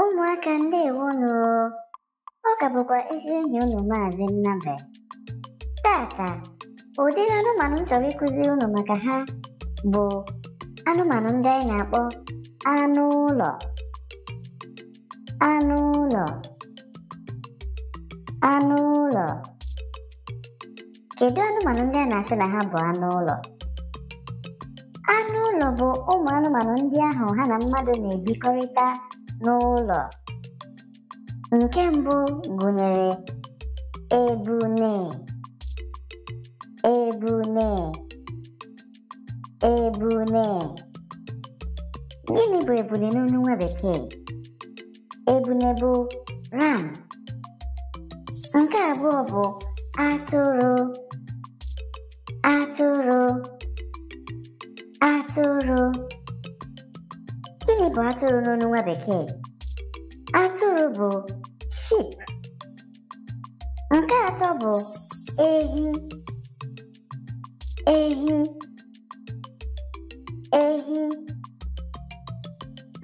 ụmụaka ndị nụrụ, ọ ka bụkwa ezi enyi unu maazị Taa ka, ụdịrị anụmanụ m chọrọ ịkụzi unu maka ha bụ anụmanụ ndị anyị na-akpọ anụ ụlọ anụ ụlọ anụ ụlọ kedu anụmanụ ndị a na-asị na ha bụ anụ ụlọ anụ ụlọ bụ ụmụ anụmanụ ndị ahụ ha na mmadụ na-ebikọrịta n'ụlọ. Nke mbụ gụnyere ebune, ebune, ebune. Gịnị bụ ebune n'onu nwa bekee? Ebune bụ ram. Nke abụọ bụ atụrụ, atụrụ, atụrụ. Gịnị bụ atụrụ n'ọnụ nwa bekee? Atụrụ bụ sheep. Nke atọ bụ ehi. Ehi. Ehi.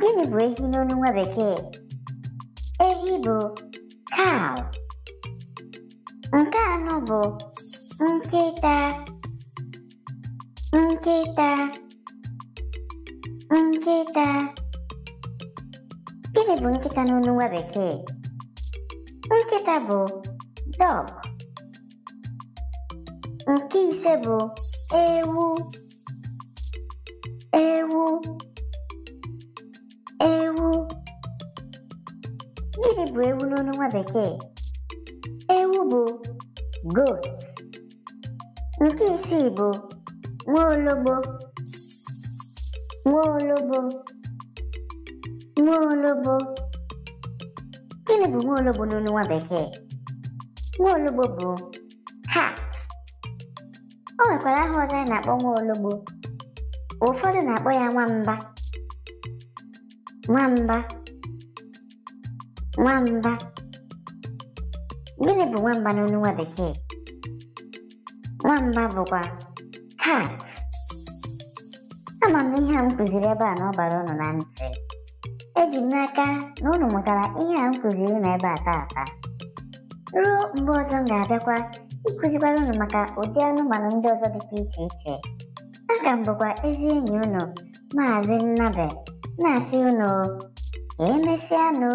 Gịnị bụ ehi n'ọnụ nwa bekee? Ehi bụ cow. Nke anọ bụ nkịta. Nkịta. Nkịta. Gịnị bụ nkịta n'onu nwa bekee? Nkịta bụ dog. Nke ise bụ ewu. Ewu. Ewu. Gịnị bụ ewu n'onu nwa bekee? Ewu bụ goat. Nke isii bụ nwa ologbo nwaologbo gịnị bụ nwaologbo n'olu nwa bekee nwaologbo bụ cat o nwekwara aha ọzọ a na-akpọ nwaologbo ụfọdụ na-akpọ ya nwamba nwamba nwamba gịnị bụ nwamba n'olu nwa bekee nwamba bụkwa cat ama m ihe a m kụziri ebe a na ọ bara ụnụ na ntị eji m n'aka na unu mụtara ihe a m kụziri unu ebe a ruo mgbe ọzọ m ga-abịakwa ịkụzikwara unu maka ụdị anụmanụ ndị ọzọ dịkwa iche iche ka m bụkwa ezi enyi unu maazị Nnabe na-asị unu anụ!